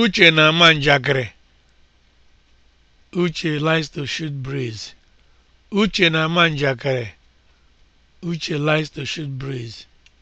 Uche na-ama njakịrị. Uche likes to shoot breeze. Uche na-ama njakịrị. Uche likes to shoot breeze.